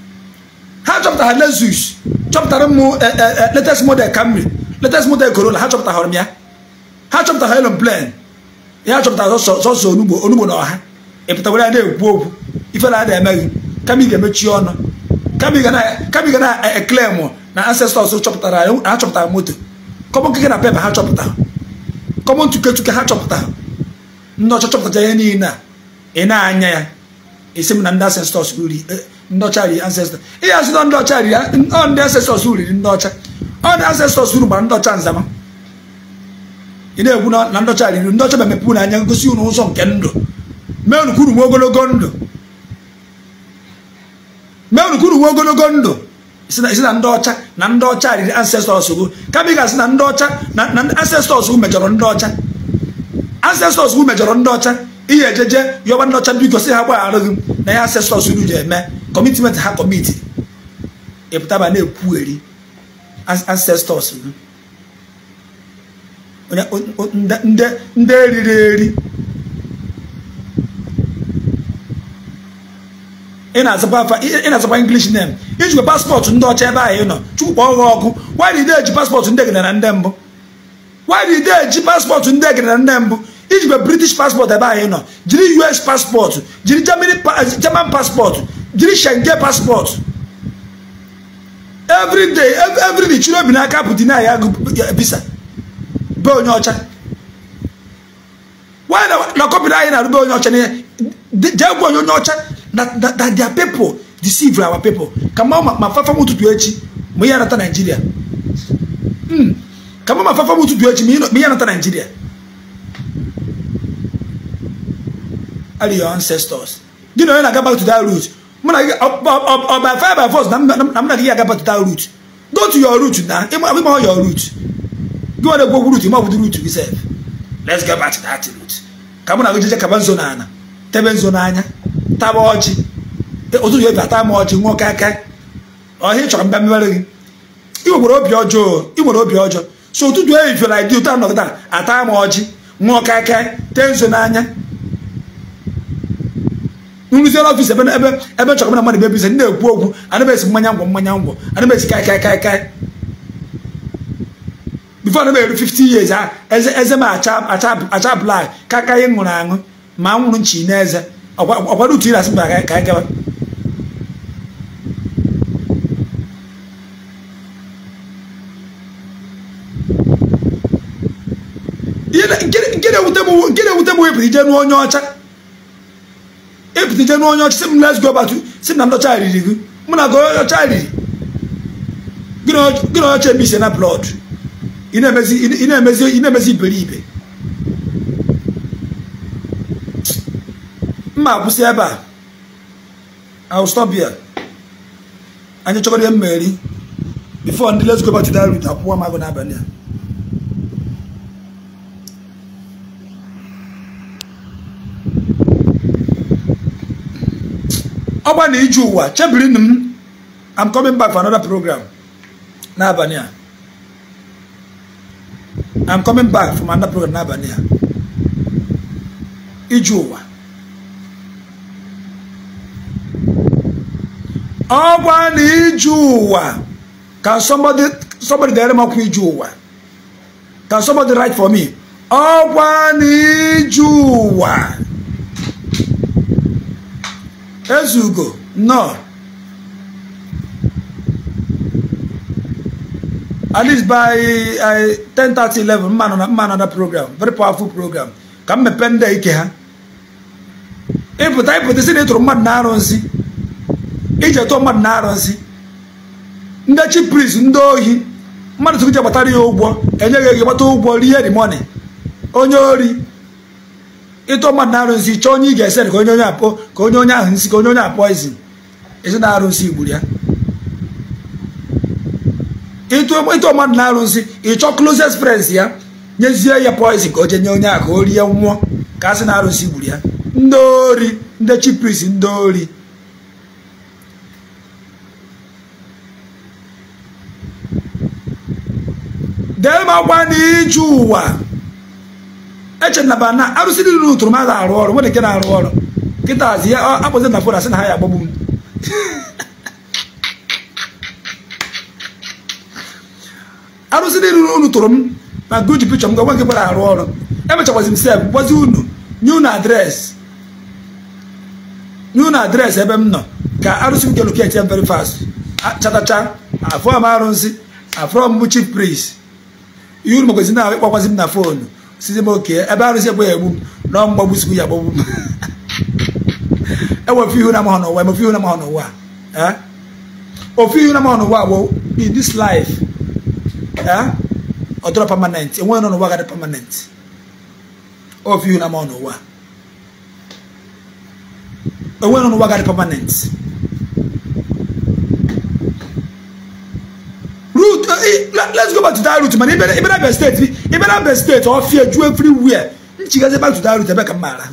ha chọpụtara Lexus chọpụtara m eh, eh, eh, latest model Camry latest model Corolla ha chọpụtara m ya ha chọpụtara Elon Plane ya chọpụtara sọsọ onugbo onugbo na ọha ịpụtawara ya na-ekwu okwu ife na emeghị kama ị ga-emechi ọnụ kama ị ga na-eklem na ancestors chọpụtara ha chọpụtara moto kọmọn na pepa ha chọpụtara kọmọn ha chọpụtara ndị ọcha chọpụtara ihe niile a ị na-anya ya esi m na ndị ancestors ruru ndị ọcha riri ancestor ihe asị na ndị ọcha ọ ndị ancestors riri ndị ọcha ọ uru gbara ndị nzama ị na-ekwu na ndị ọcha riri ndị ọcha memepe na anya ngosi unu ụzọ nke ndụ mee unukwuru nwe ogologo ndụ mee unukwuru nwe ndụ isi na ndị ọcha na ndị ọcha riri ancestors gụ kama ị ga-asị na ndị ọcha na ancestors gụ mejọrọ ndị ọcha ancestors gụ mejọrọ ndị ọcha ihe ejeje yọba ndị ọcha biko si ha gbagharụghị m na ya ancestors uru ji eme kọmitmenti ha kọmiti ịpụtaba e na-ekwugheri ancestors hmm. ndị eriri eri ị na-azakwa English name ijikwa paspọtụ ndị ọcha ebe ahụ ị nọ chukwu kpọọ gị ọkụ why paspọtụ ndị egide ndị mbụ why eji paspọtụ ndị egide na ndị mbụ ijikwa British paspọtụ ebe ahụ ị nọ jiri US paspọtụ jiri German paspọtụ jiri shenge passport every day every day chiri obi n'aka bụ deny ya visa be onye ọcha why na kọpịrị anyị na-arụbe onye ọcha n'ihe jee gwa onye onye ọcha na their people deceive our people ka ma ma fafa m ụtụtụ echi ma ihe anata naijiria hmm. ka ma ma fafa m ụtụtụ echi ma ihe anata naijiria are your ancestors gị na onye na-aga back to that route mụ na ọ by fire by force na mụ na gị ya agapụta root go to your root na ịma your root gị nwere root root let's get back to that root ka mụ na gị kaba nzo tebe nzo n'anya taba ọchị ma ọchị nwoke aka ọhịa chọrọ mba mmere gị ị nwere obi ọjọọ ị obi ọjọọ so ụtụtụ eyi fiọla dị ụtọ a, ata ma ọchị nwoke aka tee nzo n'anya nrụziere ọfịs ebe ebe ebe chọrọ na mmadụ bụ ebizi na-ekwu okwu anabeghị mmanya ngwọ mmanya ngwọ anabeghị kai kai kai kai bifo anabeghị 50 years ah, eze eze m acha blak ka kaka anyị ṅụrụ aṅụ ma nwụrụ nchi na eze ọkwado utu iri asị mba ka anyị gaba nke na-ewute m wepụrụ ije n'onye ọcha epụtije n'onye ọchị si m let's go back to si na ndị ọcha riri gị mụ na ọcha riri gị na ọcha ebe ise na blood ị na-emezi iberibe mma akwụsị ebe a austobia anyị chọgoro ihe mmeri bifo ndị let's go back to that route akwụkwọ m n'abalị a ọgba na ije ụwa chebirinu m I'm coming back for another program n'abalị a I'm coming back from another program n'abalị a ije ụwa ọgwa na ije ụwa ka somebody somebody dere m ọkwa ije ụwa ka somebody write for me ọgwa na ije ụwa ezugo nnọọ at least by 10:30 11 mma na mma nọ program very powerful program ka m mepee ndị ike ha ịpụta ịpụta si na ịtụrụ mmadụ na-arụ nsị iji mmadụ na-arụ nsị ndị chi pris ndị ohi mmadụ tụrụ ije gbatara ya ụgwọ enyeghị gị gbata ụgwọ rie the onye ori ịtụ mmadụ na-arụ nsị chọọ onye ị ga-esere ka onye onye apụ ka onye onye ahụ nsị ka onye onye apụ izin ezi na-arụ nsị gburu ya ịtụ mmadụ na-arụ nsị ịchọ closest friends ya nyezie ya poizin ka o jee nye onye a ka o rie nwụọ ka a sị na arụsị gburu ya ndị ori ndị chipris ndị ori dee m agwa n'iju ụwa echenaba na arụsị dị niile ụtụrụ mmadụ arụ ọrụ nwere nke na-arụ ọrụ nkịta azi ya akpọzi na fon asị na ha ya agbagbu m (laughs) arụsị niile unu tụrụ m na guji pichọ m gwa nke gbara arụ ọrụ emechakwazi m sef gwazi unu nye unu adreesị nye unu adreesị ebe m nọ ka arụsị m keluketi ya e very fast chatacha afọ m arụsị afọ m chief priest ihe unu magwazi na ịkpọkwazi m na fonu sisi mo kee ebe arụsị egbe ya egbu m nọọ mgbagbu sikwu ya gbagbu m enwe ofe ihu na mahọ n'ụwa ofe ihu na mahọ n'ụwa ofe ihu na No, n'ụwa bụ in this life ọ dọrọ permanent enweghị nọ n'ụwa gadị permanent ofe ihu na mahọ n'ụwa enweghị nọ n'ụwa gadị permanent let's go back to that route man ibẹ ibẹ abẹ state ibẹ abẹ state fear you everywhere nchigaze back to that route ẹbẹ ka mmaara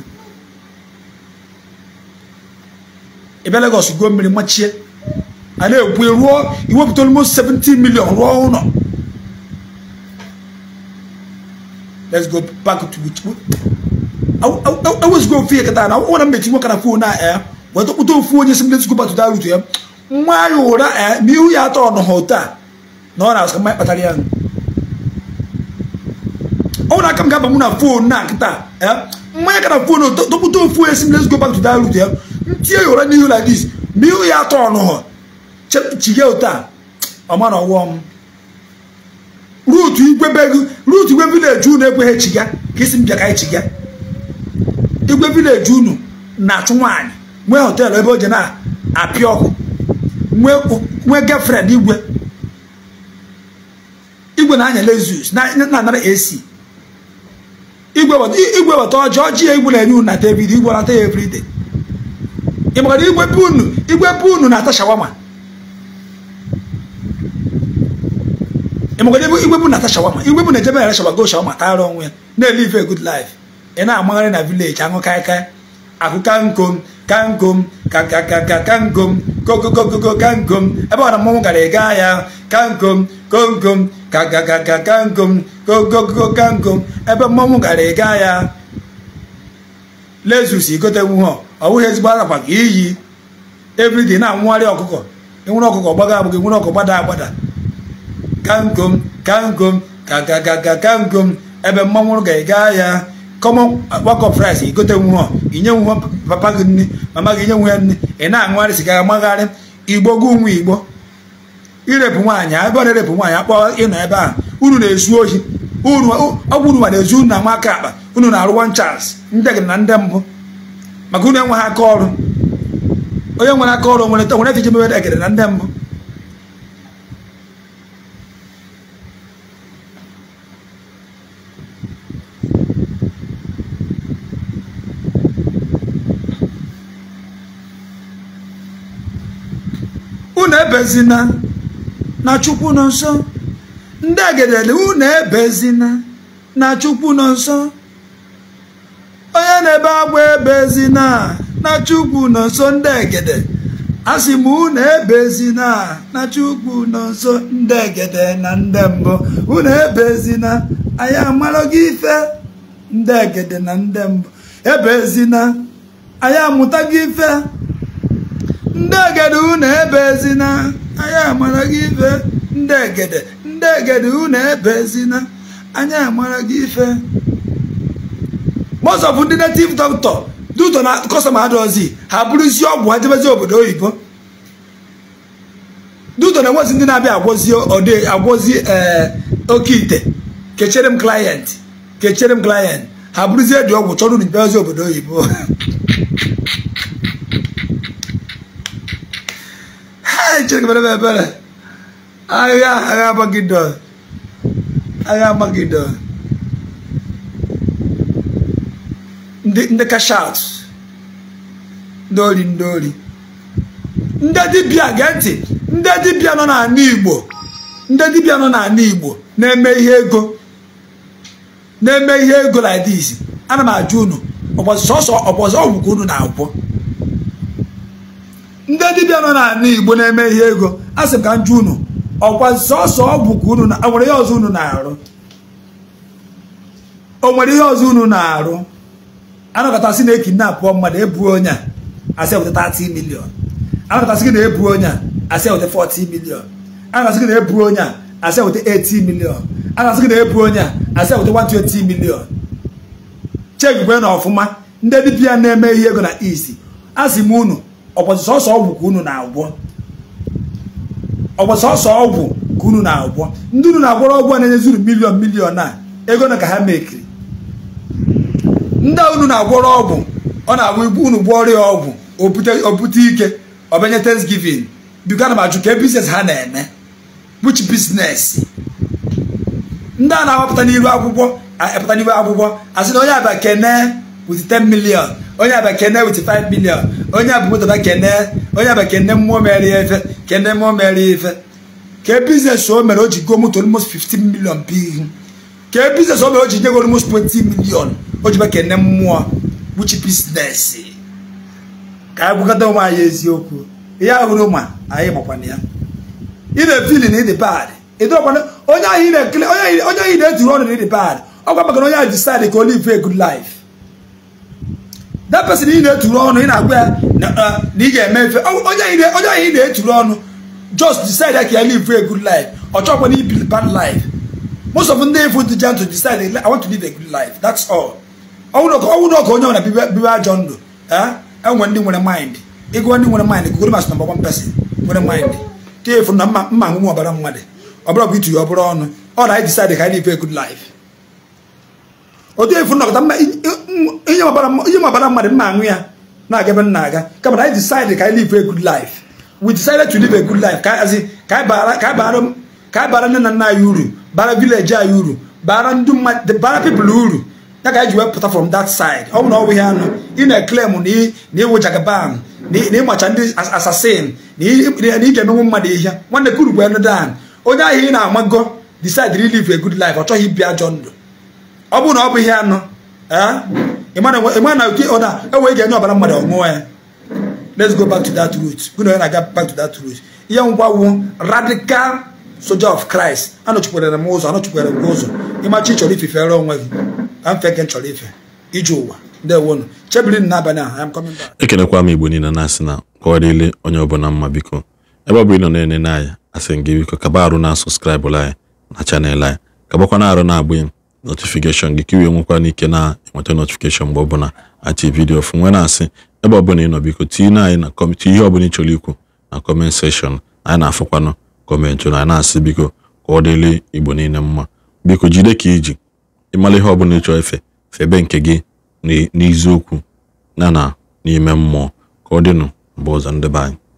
ibẹ Lagos go many mmiri I know we ekwu ruo iwepụta almost 17 million rụọ let's go back to which awụzigo ofe ihe kata na ọ na mmechi nwoke na fon a ee weta kpụta ofu onye si let's go back to that route Why you order? Eh? Me ee are ihu ya atọ Oh, na ọ na-asụ mmanya kpatara ya ọ na aka m ga-aba na fon na nkịta mmanya ka na fon topụta ofu esi let's go back to that route ya ntinye ụra n'ihu like this ma ihu ya atọ ọnụhọ chepụchighị ụta ọmara ọwụọ m ruutu igwe begu ruutu igwe vileji unu ekweghị chiga ka isi m bịa chiga igwe vileji unu na-achụ nwaanyị nwee họteelụ ebe o ji na-apịa ọkụ nwee gefrend igwe igwe na-anya Lexus na-anara AC igwe weta ọjọọ ọjị ya igwe na-enye unu na David igwe nata ya everyday ị mara igwe be unu igwe be unu na-ata shawama ịmagara igwe bụ na-ata shawama igwe bụ na-ejebe yara shawago shawama ta onwe ya na live a good life ị na-amagharị na vileji aṅụ kaikai akụ kankom kankom kakakaka kankom kokokokokankom ebe ọ na mmanwụ gara ịga ya kankom komkom kakakakankom kokokokankom ebe mmọnwụ gara ịga ya lezus igotenwu ha ọ bụghị ezigbo arakwa ka iyi everyday na-anwụgharị ọkụkọ enwere ọkụkọ gbaga agbụghị enwere ọkụkọ gbada agbada kankom kangom kakakakankom ebe mmọnwụ ga-ega ya common work of rice igote nwu inye papa gị nne mama gị inye nwu ya nne ị na-anwụgharị siga magharị igbo gị nwu igbo irepụ nwaanyị ebe ọ na-erepụ nwaanyị akpọ ịnọ ebe a unu na-ezu ohi ọgwụ unu ma na-ezu unu na nwa aka akpa unu na-arụwa nchas ndị gị na ndị mbụ maka unu enweghị aka ọrụ onye nwere aka ọrụ nwere nwere iji mebe egede na ndị mbụ unu ebezina na chukwu nọ nsọ, ndị egedele unu ebezina na chukwu nọ nsọ, onye na-ebe agwa ebezina na chukwu nọ nsọ ndị egede asị m unu ebezina na chukwu nọ nsọ ndị egede na ndị mbụ unu ebezina anyị amara gị ife ndị egede na ndị mbụ ebezina anyị amụta gị ife ndị egede unu ebezina anyị amara gị ife ndị egede ndị ebe unu ebezina anyị amara gị ife most of ndị native doctor duto na kọstọma adọzi ha bụrụzie ọgwụ ha obodo oyibo duto na-enwezi ndị na-abịa agwọzi ọdị agwọzi ee eh, oke ite kechere m client kechere m client ha bụrụzie dị ọgwụ chọrọ unu bịazi obodo oyibo (laughs) chineke mere ebere agha agha amagidon agha amagidon ndị kashat ndị ori ndị ori ndị dibịa gee ntị ndị dibịa nọ n'ala igbo ndị dibịa nọ n'ala igbo na-eme ihe ego na-eme ihe ego like this ana m ajụ unu ọgbọzọ ọgwụgwụ unu na-agwọ ndị dibịa nọ n'ala Igbo na-eme ihe ego a sị ka nju unu ọkwa sọsọ ọgwụ ka unu nwere ihe ọzọ unu na-arụ o nwere ihe ọzọ unu na-arụ anakọtasị na ekinapụọ mmadụ ebuo onye a asị eweta 30 milion anakọtasị gị na ebu onye a asị eweta 40 milion anakọtasị gị na ebu onye a asị eweta 80 milion anakọtasị gị na ebu onye a asị eweta 120 milion chekigwe na ọfụma ndị dibịa na-eme ihe ego na isi asị m unu ọgwọzi sọsọ ọgwụ ka unu na-agwọ ọgwọzi ọgwụ ka unu na-agwọ ndị unu na-agwọrọ ọgwụ a na enye zuru miliọn miliọn a ego na ka ha mekiri ndị unu na-agwọrọ ọgwụ ọ na-agwụ ibu unu gwọọ ọrịa ọgwụ obute ike ọbanye thanksgiving biko ana m ajụ ka biznes ha na-eme which business ndị a na-awapụta n'iru akwụkwọ epụta n'iru akwụkwọ asị na onye abịa kene with 10 million onye abịa kene with 5 million onye abụ abụmụtaba kene onye aba kene mmụọ mere ya efe kene mmụọ mere ya efe ka bizines o mere o ji goo moto almost 15 million bụ ka biznes o mere o ji nye go almost 20 million o ji kene mmụọ kpuchi bizinesi. ka anyị gwakọta ụmụ anyị eziokwu ihe ahụrụ ma anyị gbakwana ya ị na-efili na ịdị bad onye ahụ ị na-etiri ọnụ na ịdị bad ọ gwa maka na onye ahụ disaịdị ka olive a good life that person ị na-eturu ọnụ ị na-agwa ya na uh, ị ga-eme efe onye ahụ ị na-eturu ọnụ just decide ya ka ya live a good life ọ chọkwa na ibi bad life most of ndị ifu dịjan to decide I want to live a good life that's all ọnwụrụ ọka onye nwere bibe ajọ ndụ enwe eh? e ndị nwere mind ịgụọ ndị nwere mind mas na one person nwere mind e na mma mma nwụnwe ọbara mmadụ ọ bụrụ bụ ọ bụrụ ọnụ ọ na anyị decide otu efu nọkọta mma ihe mabara mmadụ mma aṅụ ya na-aga ebe nna aga kama na anyị decide ka anyị live a good life we decided to live a good life ka anyị bara nne na nna anyị uru bara village anyị uru bara ndị mmadụ bara people uru ya ka anyị ji wee pụta from that side ọ bụ na ọbụ ihe anụ ị na-eklem na ịwụ jagaban na ịmacha ndị assassin na ị ga-emenwu mmadụ ihe nwanne kuru bụ enodan onye ahụ ị na-amago decide to live a good life ọ chọghị ibi ajọ ndụ ọ bụrụ na ọ bụ ihe anụ ịma na oke ụda enwe e ga-enye ọbara mmadụ ọṅụọ ya let's go back to that root gụna onye na-aga back to that root ihe ngwa wu radical soldier of Christ anọchikwere m ụzọ anọchikwere m ụzọ ịmachi chọrọ ifefere onwe gị ka mfe nke chọrọ ife ije ụwa ndewonu chebiri n'abalị a am coming back ekelekwa m igbo niile na-asị na kọwarịrị onye ọbụla mma biko ebe ọ bụ ịnọ na-enene anyị asị gị biko kaba arụ na sọskraịbụrụ anyị na chanel anyị kabakwa na arụ na-agbụ notifikeshọn gị ka iwee nwekwana ike na-enweta notifikeshọn mgbe ọbụla achị vidiyo fụ nwe na-asị ebe ọbụla nọ biko tinye anyị na kọmentị ihe ọbụla ị chọrọ ikwu na kọment seshọn anyị na-afụkwanụ kọmentị na na-asị biko ka ọ dịrị igbo niile mma biko jide ka iji ịmara ihe ọbụla ị chọọ efe febe nke gị n'iziokwu na na n'ime mmụọ ka ọ dịnụ mgbe ọzọ ndị be anyị